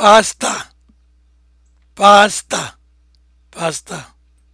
pasta, pasta, pasta.